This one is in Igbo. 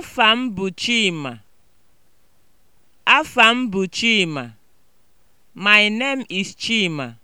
Afa m bụ Chima. bụ Chima. My name is Chima.